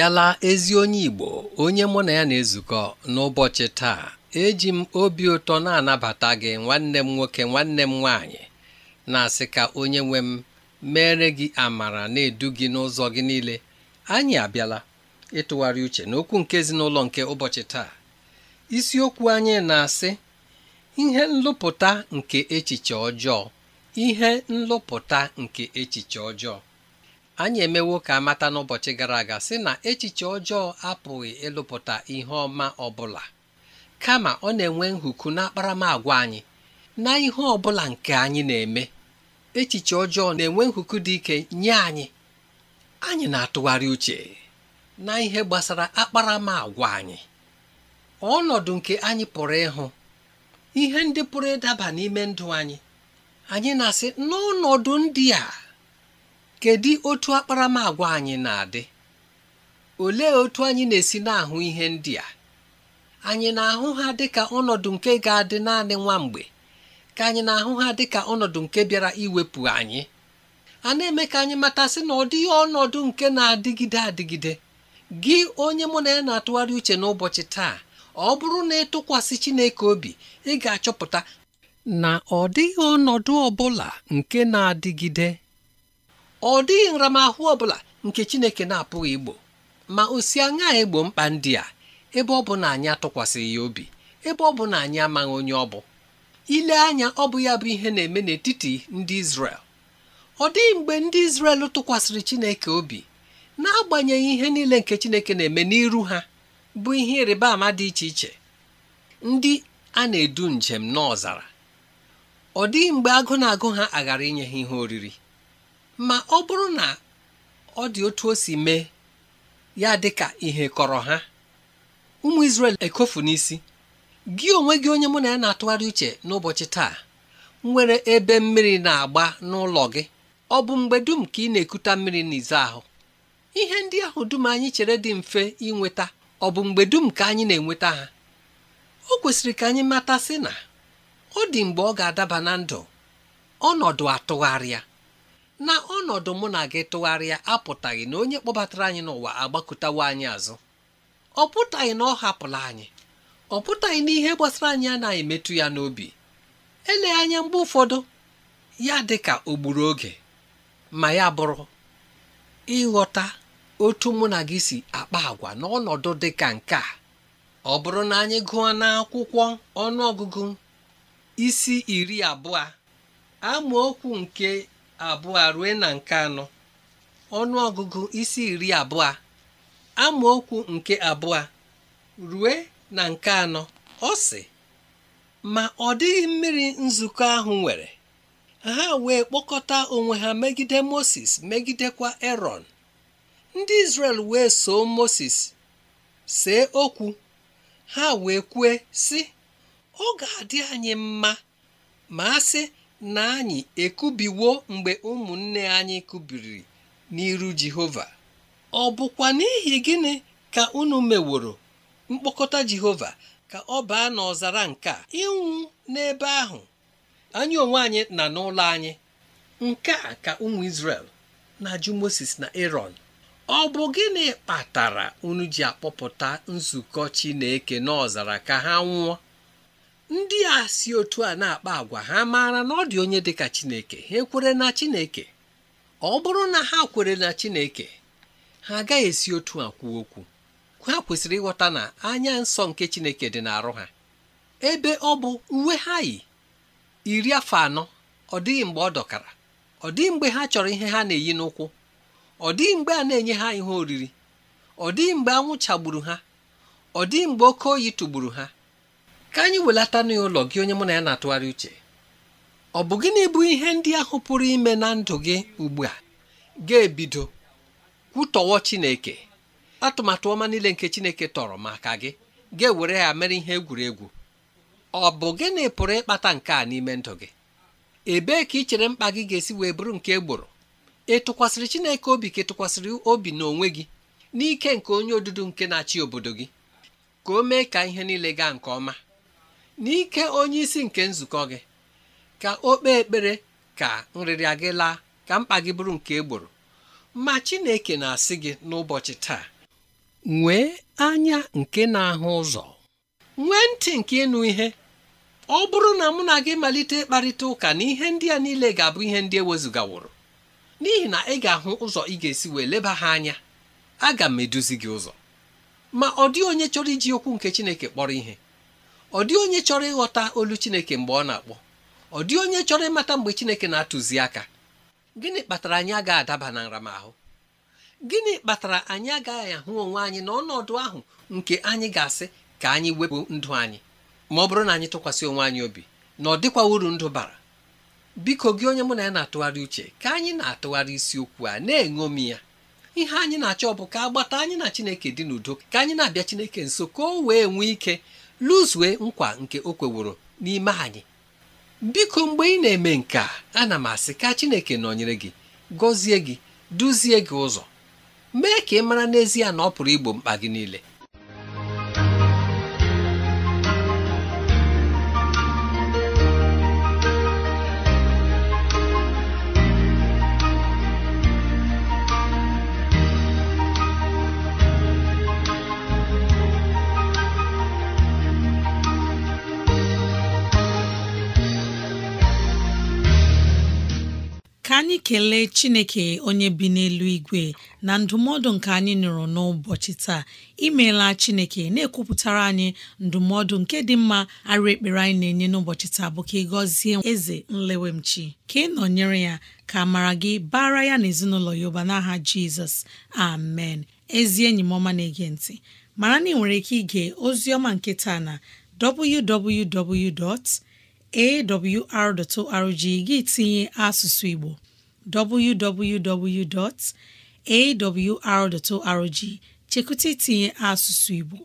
bịala ezi onye Igbo onye mụ na ya na-ezukọ n'ụbọchị taa eji m obi ụtọ na-anabata gị nwanne m nwoke nwanne m nwaanyị na-asị ka onye nwe m mere gị amara na-edu gị n'ụzọ gị niile anyị abịala ịtụgharị uche n'okwu nke ezinụlọ nke ụbọchị taa isiokwu anyị na-asị ihe nlụpụta nke echiche ọjọọ ihe nlụpụta nke echiche ọjọọ anyị emewo ka amata n'ụbọchị gara aga sị na echiche ọjọọ apụghị ịlụpụta ihe ọma ọbụla kama ọ na-enwe nhuku agwa anyị na ihe ọbụla nke anyị na-eme echiche ọjọọ na-enwe nhuku dị ike nye anyị anyị na-atụgharị uche na ihe gbasara akparamagwa anyị ọnọdụ nke anyị pụrụ ịhụ ihe ndị pụrụ ịdaba n'ime ndụ anyị anyị na-asị n'ọnọdụ ndị a kedu otu akparamagwa anyị na-adị olee otu anyị na-esi na-ahụ ihe ndị a anyị na-ahụ ha dịka ọnọdụ nke ga-adị naanị nwa mgbe ka anyị na-ahụ ha dị ka ọnọdụ nke bịara iwepụ anyị a na-eme ka anyị matasị na ọ dịghị ọnọdụ nke na-adịgide adịgide gị onye mụ na ya na-atụgharị uche n'ụbọchị taa ọ bụrụ na ịtụkwasị Chineke obi ị ga-achọpụta na ọ dịghị ọnọdụ ọ bụla nke na-adịgide ọ dịghị nramahụ ọ bụla nke Chineke na-apụghị igbo ma o si aṅaa egbo mkpa ndị a ebe ọ bụ na anyị atụkwasịghị ya obi ebe ọ bụ na anyị amaghị onye ọ bụ ile anya ọ bụ ya bụ ihe na-eme n'etiti ndị Izrel ọ dịghị mgbe ndị Izrel tụkwasịrị Chineke obi n'agbanyeghị ihe niile nke Chineke na-eme n'iru ha bụ ihe ịrịba ama dị iche iche ndị a na-edu njem n'ọzara ọ dịghị mgbe agụ na-agụ ha aghara inye ha ihe oriri ma ọ bụrụ na ọ dị otu o si mee ya dị ka ihe kọrọ ha ụmụ Israel ekofu n'isi gị onwe gị onye mụ na ya na-atụgharị uche n'ụbọchị taa nwere ebe mmiri na-agba n'ụlọ gị ọ bụ mgbe dum ka ị na-ekuta mmiri n'izu ahụ ihe ndị ahụ dum anyị chere dị mfe inweta ọ bụ mgbe dum ka anyị na-enweta ha o kwesịrị ka anyị mata sị na ọ dị mgbe ọ ga-adaba na ndụ ọnọdụ atụgharịa na ọnọdụ mụ na gị tụgharịa apụtaghị na onye kpọbatara anyị n'ụwa agbakọtawo anyị azụ ọ pụtaghị na ọ hapụla anyị ọ pụtaghị na ihe gbasara anyị anaghị emetụ ya n'obi ele anya mgbe ụfọdụ ya dị ka o oge ma ya bụrụ ịghọta otu mụ na gị si akpa agwa n'ọnọdụ dị ka nke a ọ bụrụ na anyị gụọ n'akwụkwọ ọnụọgụgụ isi iri abụọ amaokwu nke abụọ rue na nke anọ ọnụ ọgụgụ isi iri abụọ amaokwu nke abụọ rue na nke anọ ọ sị ma ọ dịghị mmiri nzukọ ahụ nwere ha wee kpọkọta onwe ha megide Moses megidekwa Erọn ndị Izrel wee soo Moses see okwu ha wee kwue si ọ ga-adị anyị mma ma a sị na anyị ekubiwo mgbe ụmụnne anyị kubiri n'iru Jehova ọ bụkwa n'ihi gịnị ka unu meworo mkpokọta Jehova ka ọ baa n'ọzara nke a ịnwụ n'ebe ahụ anyị onwe anyị na n'ụlọ anyị nke a ka ụmụ Izrel na-ajụ na Aaron ọ bụ gịnị kpatara unu ji akpọpụta nzukọ Chineke n'ọzara ka ha nwụọ ndị a si otu a na-akpa agwa ha maara na ọ dị onye dịka Chineke ha ekwere na Chineke ọ bụrụ na ha kwere na Chineke ha agaghị esi otu a kwuo okwu ha kwesịrị ịghọta na anya nsọ nke Chineke dị n'arụ ha ebe ọ bụ uwe ha yi iri afọ anọ ọ dịghị mgbe ọ dọkara ọ dịghị mgbe ha chọrọ ihe ha na-eyi n'ụkwụ ọ dịghị mgbe a na-enye ha ihe oriri ọ dịghị mgbe anwụ chagburu ha ọ dịghị mgbe oke oyi tụgburu ha ka anyị welata n'ụlọ gị onye mụ na ya na-atụgharị uche ọ bụ gịnị bụ ihe ndị ahụ pụrụ ime na ndụ gị ugbu a ga-ebido kwutọwọ Chineke atụmatụ ọma niile nke Chineke tọrọ maka gị ga-ewere ya mere ihe egwuregwu ọ bụ gịnị pụrụ ịkpata nke a n'ime ndụ gị ebee ka ị chere mkpa gị ga-esi wee bụrụ nke egboro ị tụkwasịrị Chineke obi ka tụkwasịrị obi n'onwe gị n'ike nke onye odudu nke na-achị obodo gị ka o mee ka ihe niile gaa nke ọma n'ike onyeisi nke nzukọ gị ka o kpee ekpere ka nrịrịa gị laa ka mkpa gị bụrụ nke egboro ma Chineke na-asị gị n'ụbọchị taa nwee anya nke na-ahụ ụzọ nwee ntị nke ịnụ ihe ọ bụrụ na mụ na gị malite ịkparịta ụka na ihe ndị a niile ga-abụ ihe ndị ewezụgaworo n'ihi na ị ga-ahụ ụzọ ị ga-esi wee leba ha anya aga m eduzi gị ụzọ ma ọ dịghị onye chọrọ iji okwu nke Chineke kpọrọ ihe ọ dị onye chọrọ ịghọta olu Chineke mgbe ọ na-akpọ ọ dị onye chọrọ ịmata mgbe Chineke na-atụzi aka gịnị kpatara anyị agaghị adaba na nramahụ gịnị kpatara anyị agaghị ahụ onwe anyị n'ọnọdụ ahụ nke anyị ga-asị ka anyị wepụ ndụ anyị ma ọ bụrụ na anyị tụkwasị onwe anyị obi na ọ dịkwa uru ndụ bara biko gị onye mụ na ya na-atụgharị uche ka anyị na-atụgharị isiokwu a na-eṅomi ya ihe anyị na-achọ bụ ka agbata anyị na Chineke dị n'udo ka anyị na-abịa Chineke nso ka o wee nwee ike lụzue nkwa nke o kweworo n'ime anyị biko mgbe ị na-eme nke a ana m asị ka Chineke nọnyere gị gọzie gị duzie gị ụzọ mee ka ị mara n'ezie na ọ pụrụ igbo mkpa gị niile anyị kelee chineke onye bi n'elu igwe na ndụmọdụ nke anyị nụrụ n'ụbọchị taa imeela chineke na-ekwupụtara anyị ndụmọdụ nke dị mma arụ ekpere anyị na-enye n'ụbọchị taa bụ ka ị gọzie eze nlewemchi ka ị nọnyere ya ka mara gị bara ya na ezinụlọ ya ụba n'aha jizọs amen ezi enyi m ọma na-ege ntị mara na ị nwere ike ige ozi ọma nke taa na www awr.org gị tinye asụsụ Igbo www.awr.org chekwụta itinye asụsụ Igbo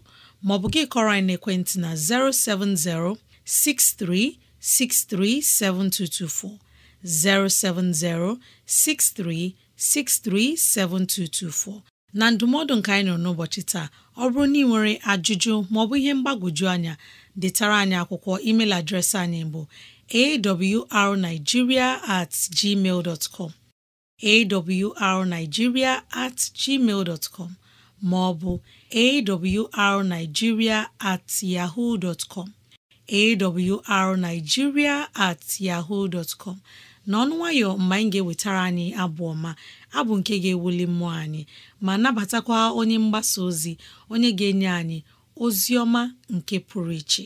maọbụ gị kọrọ anyị n'ekwentị na 070 63 7224 070 63 7224 na ndụmọdụ nka anyị nọ n'ụbọchị taa ọ bụrụ na ị nwere ajụjụ maọbụ ihe mgbagwoju anya detara anyị akwụkwọ email adreesị anyị bụ awrnigeria at gmail com at gmail ma ọ bụ at yaho dot com awrnigeria at yahoo nwayọ mgbe anyị ga-ewetara anyị abụ ọma abụ nke ga-ewuli mmụọ anyị ma nabatakwa onye mgbasa ozi onye ga-enye anyị ozi ọma nke pụrụ iche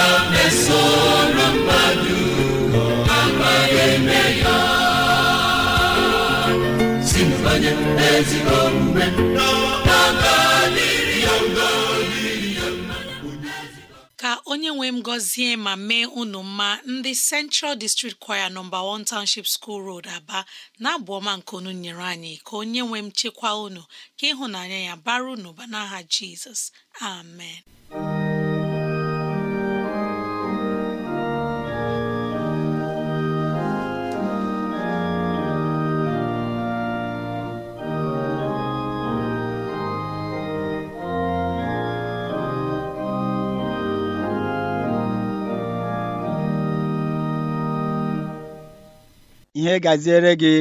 ka onye nwe m gọzie ma mee unu mma ndị Central District Choir nọmba 1 Township School Road Aba na-abụ ọma nke unu nyere anyị ka onye nwe m chekwa unu ka ịhụnanya ya bara unu ba n'aha Jizọs amen ihe gaziere gị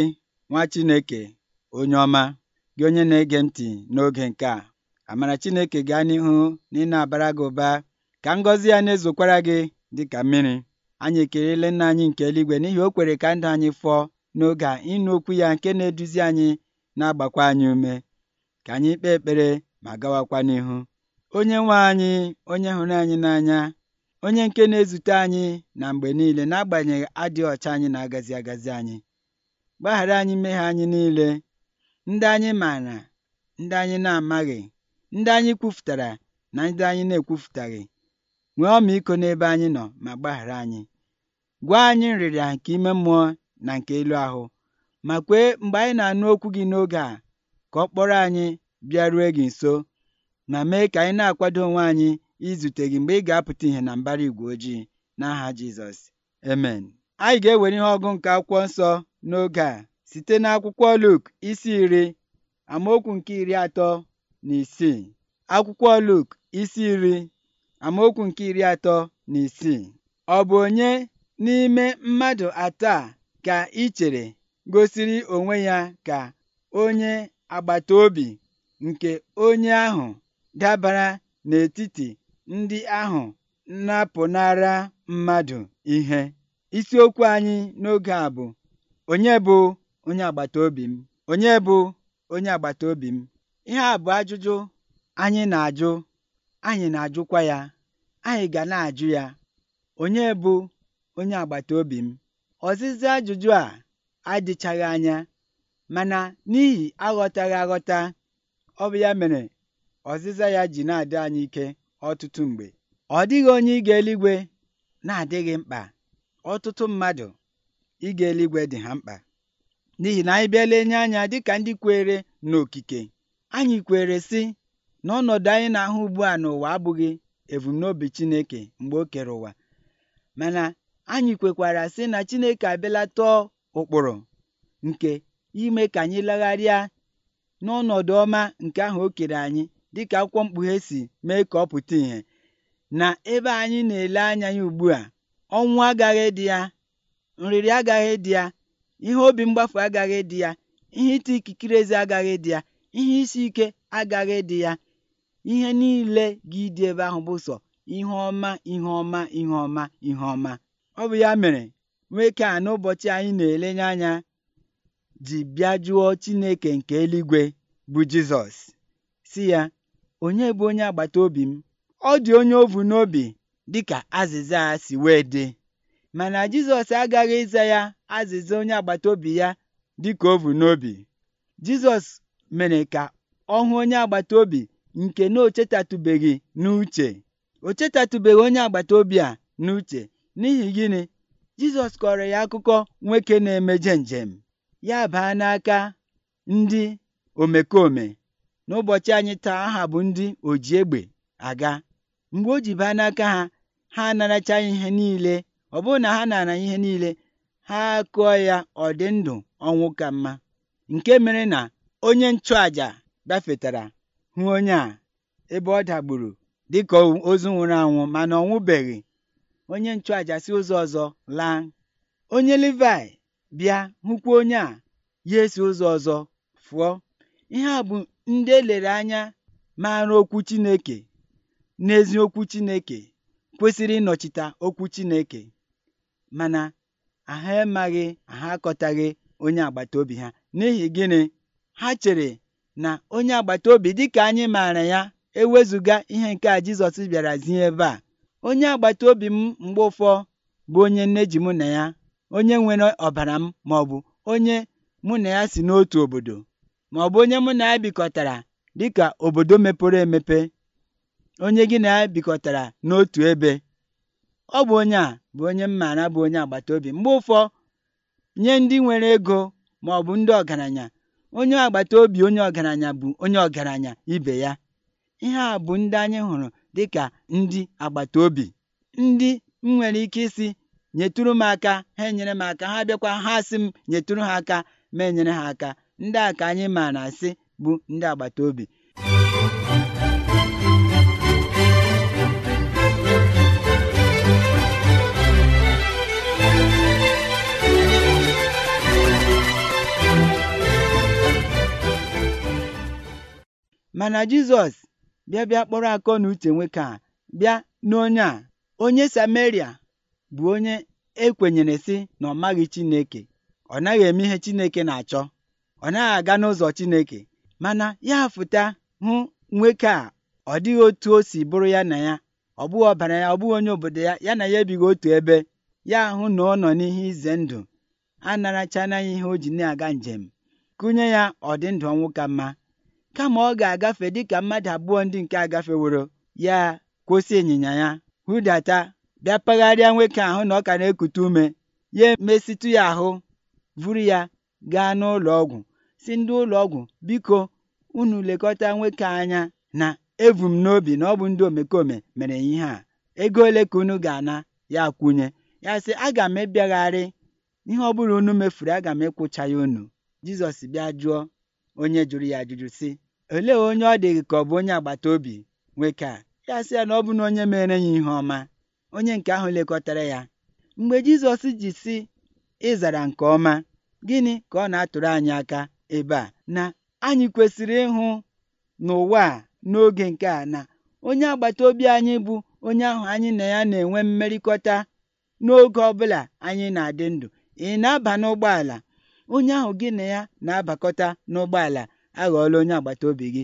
nwa Chineke onye ọma gị onye na-ege ntị n'oge nke a amara Chineke gaa n'ihu na ị na-abara gị ụba ka ngọzi ya na-ezokwara gị dị ka mmiri anyị ekelela nna anyị nke eluigwe n'ihi o kwere ka ndị anyị fụọ n'oge a ịnụ okwu ya nke na-eduzi anyị na-agbakwa anyị ume ka anyị kpee ekpere ma gawakwa n'ihu onye nwe anyị onye hụrụ anyị n'anya onye nke na-ezute anyị na mgbe niile n'agbanyeghị adịghị ọcha anyị na-agazi agazi anyị gbaghara anyị mmehie anyị niile ndị anyị maara ndị anyị na-amaghị ndị anyị kwufutara na ndị anyị na-ekwufutaghị nwee iko n'ebe anyị nọ ma gbaghara anyị gwa anyị nrịrịa nke ime mmụọ na nke elu ahụ ma kwee mgbe anyị na-anụ okwu gị n'oge a ka ọ kpọrọ anyị bịa rue gị nso ma mee ka anyị na-akwado onwe anyị izute gị mgbe ị ga-apụta ihe na mbara igwe ojii n'aha Jizọs emen. anyị ga-ewere ihe ọgụ nke akwụkwọ nsọ n'oge a site n'akwụkwọ Luk isi iri amaokwu nke iri atọ na isii akwụkwọ Luk isi iri amaokwu nke iri atọ na isii ọ bụ onye n'ime mmadụ atọ a ka ị gosiri onwe ya ka onye agbata obi nke onye ahụ dabara n'etiti ndị ahụ napụnara mmadụ ihe isiokwu anyị n'oge a bụ onye bụ onye agbata obi m onye bụ onye agbata obi m ihe a bụ ajụjụ anyị na-ajụ anyị na-ajụkwa ya anyị ga na-ajụ ya onye bụ onye agbata obi m ọzịza ajụjụ a adịchaghị anya mana n'ihi aghọtaghị aghọta ọ bụ ya mere ọzịza ya ji na-adị anyị ike ọtụtụ mgbe ọ dịghị onye ịga eluigwe na-adịghị mkpa ọtụtụ mmadụ ịga eluigwe dị ha mkpa n'ihi na anyị bịala enye anya dịka ndị kwere n'okike anyị kwere sị na ọnọdụ anyị na-ahụ ugbu a n'ụwa abụghị ebumnobi Chineke mgbe o kere ụwa mana anyị kwekwara sị na Chineke abịala tọọ ụkpụrụ nke ime ka anyị legharịa n'ọnọdụ ọma nke ahụ o kere anyị dịka akwụkwọ mkpughe si mee ka ọ pụta ìhè na ebe anyị na-ele anya ya ugbu a ọnwụ agaghị dị ya nrịrị agaghị dị ya ihe obi mgbafu agaghị dị ya ihe ịta ikikere ezi agaghị dị ya ihe isi ike agaghị dị ya ihe niile gị dị ebe ahụ bụ sọ ihe ọma ihe ọma ihe ọma ihe ọma ọ bụ ya mere nwoke a n'ụbọchị anyị na-elenye anya ji bịa jụọ Chineke nke eluigwe bụ Jizọs si ya onye bụ onye agbata obi m ọ dị onye ovu n'obi dị ka azịza a si wee dị mana Jizọs agaghị ịza ya azịza onye agbata obi ya dị dịka ovu n'obi Jizọs mere ka ọ hụ onye agbata obi nke na o chetatụbeghị n'uche o chetatụbeghị onye agbata obi a n'uche n'ihi gịnị Jizọs kọrọ ya akụkọ nwoke na-emeje njem ya baa n'aka ndị omekome n'ụbọchị anyị taa aha bụ ndị oji egbe aga mgbe o ji baa n'aka ha ha anaracha ihe niile ọ bụrụ na ha nara ihe niile ha akụọ ya ọ dị ndụ ọnwụ ka mma nke mere na onye nchụaja gafetara hụ onye a ebe ọ dagburu dịka ozu nwụrụ anwụ mana ọ onye nchụaja si ụzọ ọzọ laa onye livai bịa hụkwa onye a ya esi ụzọ ọzọ fụọ ihe a bụ ndị elere anya mara okwu Chineke n'ezi okwu kwesịrị ịnọchite okwu Chineke mana ha emaghị ha akọtaghị onye agbata obi ha n'ihi gịnị ha chere na onye agbata obi ka anyị maara ya ewezụga ihe nke a Jizọs bịara zie ebe a onye obi m mgbe ụfọ bụ onye nne ji mụ na ya onye nwere ọbara m maọbụ onye mụ na ya si n'otu obodo. maọbụ onye mụ na ya bikọtara dịka obodo mepere emepe onye gị na ya bikọtara n'otu ebe ọ bụ onye a bụ onye m maara bụ onye agbata obi mgbe ụfọ nye ndị nwere ego maọbụ ndị ọgaranya onye agbata obi onye ọgaranya bụ onye ọgaranya ibe ya ihe a bụ ndị anyị hụrụ dịka ndị agbata obi ndị m nwere ike isi nyetụrụ m aka ha enyere m aka ha bịakwa ha sị m nyetụrụ ha aka ma enyere ha aka ndị a ka anyị ma na asị bụ ndị agbata obi mana Jizọs bịa bịa kpọrọ akọ na uche nwoke a bịa n'onye a onye Sameria bụ onye ekwenyere sị na ọ maghị Chineke ọ naghị eme ihe Chineke na-achọ ọ naghị aga n'ụzọ Chineke mana ya fụta hụ nwoke a ọ dịghị otu o si bụrụ ya na ya ọ bụghị ọbara ya ọ bụghị onye obodo ya ya na ya ebighị otu ebe ya ahụ na ọ nọ n'ihe ize ndụ a ya ihe o ji na-aga njem kụnye ya ndụ ọnwụ ka mma kama ọ ga-agafe dịka mmadụ abụọ ndị nke agafeworo ya kwụsị ịnyịnya ya hụdata bịa pagharịa nwoke ahụ na ọ ka na-ekute ume ya emesịtụ ya ahụ vuru ya gaa n'ụlọ ọgwụ sị ndị ụlọọgwụ biko unu lekọta nwoke anya na evu m n'obi na ọ bụ ndị omekome mere ihe a ego ole ka unu ga-ana ya kwunye ya sị aga m ebịagharị ihe ọ bụrụ unu mefuru aga m ịkwụcha ya unu Jizọs bịa jụọ onye jụrụ ya ajụjụ sị olee onye ọ dịghị ka ọ bụ onye agbata obi nwoke a ya sị ya na ọ bụ na onye mere ya ihe ọma onye nke ahụ lekọtara ya mgbe Jizọs ji sị ịzara nke ọma gịnị ka ọ na-atụrụ anyị aka ebe a na anyị kwesịrị ịhụ n'ụwa a n'oge nke a na onye agbata obi anyị bụ onye ahụ anyị na ya na-enwe mmerịkọta n'oge ọbụla anyị na-adị ndụ ị na-aba n'ụgbọala onye ahụ gị na ya na-abakọta n'ụgbọala aghọọla onye agbata obi gị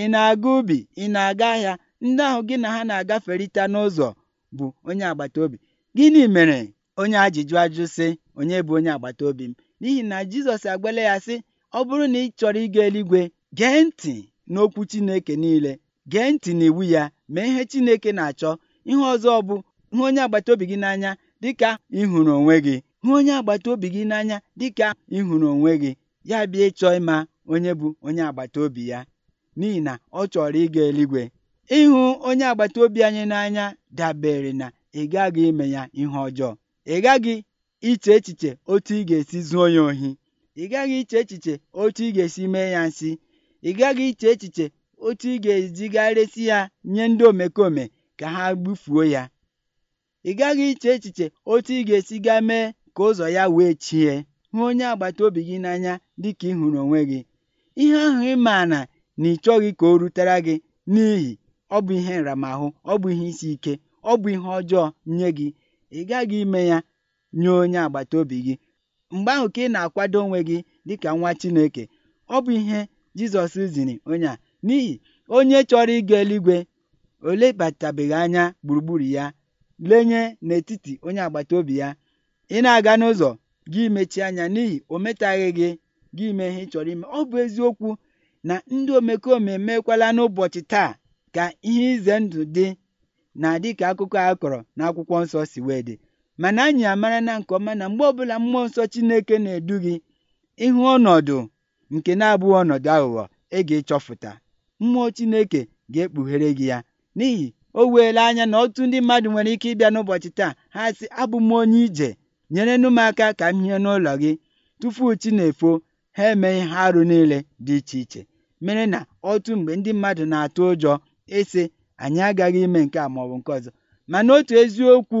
ị na-aga ubi ị na-aga ahịa ndị ahụ gị na ha na-agaferịta n'ụzọ bụ onye agbata obi gịnị mere onye ajụjụ ajụ sị onye bụ onye agbata obi m n'ihi na Jizọs agwala ya sị ọ bụrụ na ị chọrọ ịga eluigwe gee ntị n'okwu Chineke niile gee ntị n'iwu ya mee ihe Chineke na-achọ ihe ọzọ bụ hụ onye agbata obi gị n'anya dịka ị hụrụ onwe gị hụ onye agbata obi gị n'anya dịka ịhụrụ onwe gị ya bịa ịchọ ịma onye bụ onye agbata obi ya n'ihi na ọ chọrọ ịga eluigwe ịhụ onye agbata obi anyị n'anya dabere na ị gaghị ime ya ihe ọjọọ ị gaghị iche echiche otu ị ga-esi zuo ya ohi ị gaghị iche echiche otu ị ga-esi mee ya nsị ị gaghị iche echiche otu ị ga-ezigharịsị ya nye ndị omekome ka ha gbufuo ya ị gaghị iche echiche otu ị ga-esi gaa mee ka ụzọ ya wee chie hụ onye agbata obi gị n'anya dịka ị hụrụ onwe gị ihe ahụ ị maa na na ị chọghị ka o rutere gị n'ihi ọ bụ ihe nramahụ ọ bụ ihe isi ike ọ bụ ihe ọjọọ nye gị ị gaghị ime ya nye onye agbata obi gị mgbe ahụ ka ị na-akwado onwe gị dịka nwa chineke ọ bụ ihe Jizọs ziri onye a n'ihi onye chọrọ ịga eluigwe ò anya gburugburu ya lenye n'etiti onye agbata obi ya ị na aga n'ụzọ gị mechie anya n'ihi o metaghị gị gị mee ihe ị chọ̀rọ̀ ọ bụ eziokwu na ndị omekome èmeekwala n'ụbọchị taa ka ihe ize ndụ dị na dịka akụkọ à a kọ̀rọ̀ n'akwụkwọ nsọ sì dị mana anyị amara na nke ọma na mgbe ọbụla mmụọ nsọ Chineke na-edu gị ịhụ ọnọdụ nke na-abụghị ọnọdụ aghụghọ ị e ga echọfụta mmụọ Chineke ga-ekpughere gị ya n'ihi o weela anya na ọtụtụ ndị mmadụ nwere ike ịbịa n'ụbọchị taa ha sị abụ m onye ije nyere m aka ka m hie n'ụlọ gị tupu chi na-efo ha emeghị ha arụ niile dị iche iche mere na otu mgbe ndị mmadụ na-atụ ụjọ ịsị e anyị agaghị ime nke a maọbụ nke ọzọ mana otu eziokwu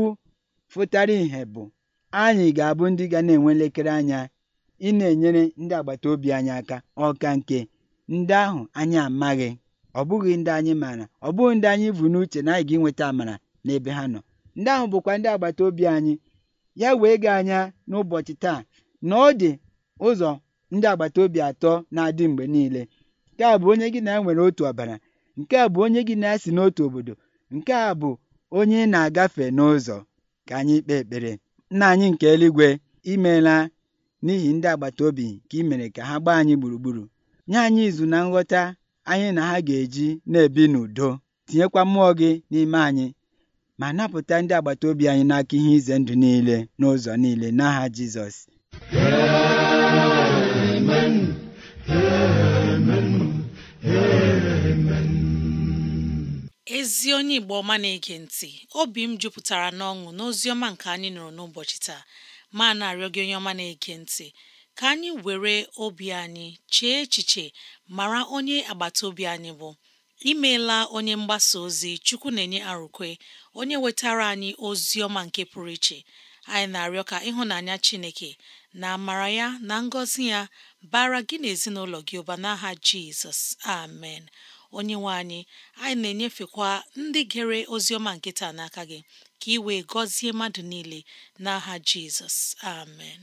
fụtara ìhè bụ anyị ga-abụ ndị ga na-enwe elekere anya ị na-enyere ndị agbata obi anyị aka ọka nke ndị ahụ anyị amaghị ọ bụghị ndị anyị maara ọ bụghị ndị anyị bụ n'uche na anyị ga-enweta amara n'ebe ha nọ ndị ahụ bụkwa ndị agbata obi anyị ya wee gaa anya n'ụbọchị taa na ọ dị ụzọ ndị agbata obi atọ na-adị mgbe niile nke a bụ onye gị na ya nwere otu ọbara nke a bụ onye gị na ya si n'otu obodo nke a bụ onye ị na-agafe n'ụzọ ka anyị kpee ekpere nna anyị nke eluigwe imeela n'ihi ndị agbata obi ka i mere ka ha gbaa anyị gburugburu nye anyị izu na nghọta anyị na ha ga-eji na-ebi n'udo tinyekwa mmụọ gị n'ime anyị ma napụta ndị agbata obi anyị n'aka ihe ize ndụ niile n'ụzọ niile n'aha Jizọs ezi onye Igbo ọma na-ege ntị obi m jupụtara n'ọṅụ n'ozi ọma nke anyị nụrụ n'ụbọchị taa ma na-arịọ gị onye ọma na-ege ntị ka anyị were obi anyị chee echiche mara onye agbata obi anyị bụ imeela onye mgbasa ozi Chukwu na-enye arụkwe onye wetara anyị ozi ọma nke pụrụ iche anyị na-arịọ ka ịhụnanya Chineke na amara ya na ngọzi ya bara gị na ezinụlọ gị ụba n'aha Jizọs amen onye nwe anyị anyị na-enyefekwa ndị gere oziọma nke taa n'aka gị ka ị wee gọzie mmadụ niile n'aha jizọs amen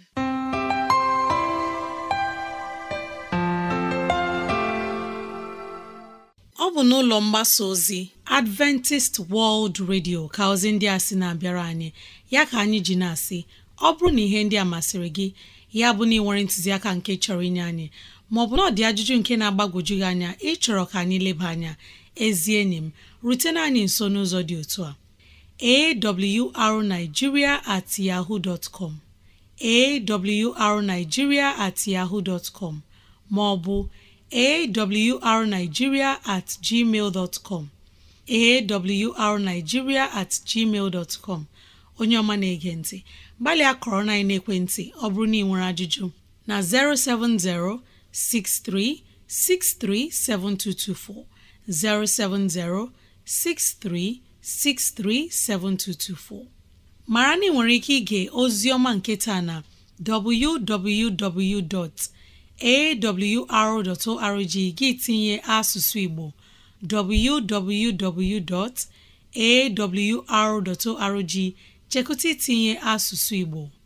ọ bụ n'ụlọ mgbasa ozi Adventist World Radio ka ozi ndị a sị na-abịara anyị ya ka anyị ji na-asị ọ bụrụ na ihe ndị a masịrị gị ya bụ na ị nwere ntụziaka nke chọrọ inye anyị maọbụ na ọ dị ajụjụ nke na-agbagwoju gị anya ịchọrọ ka anyị leba anya ezi enyi m rutena anyị nso n'ụzọ dị otu a awrnigeria at yahoo dot com awrnigeria at yahoo dot com maọbụ awrnigeria at gmail dot com awrnigeria at gmail dot com onye ọma na-ege ntị gbalịa kọrọ na ekwentị ọ bụrụ na ị nwere ajụjụ na 070 07063637224 mara na ị nwere ike ige Ozioma nketa na www.awr.org gị tinye asụsụ Igbo www.awr.org chekụta itinye asụsụ Igbo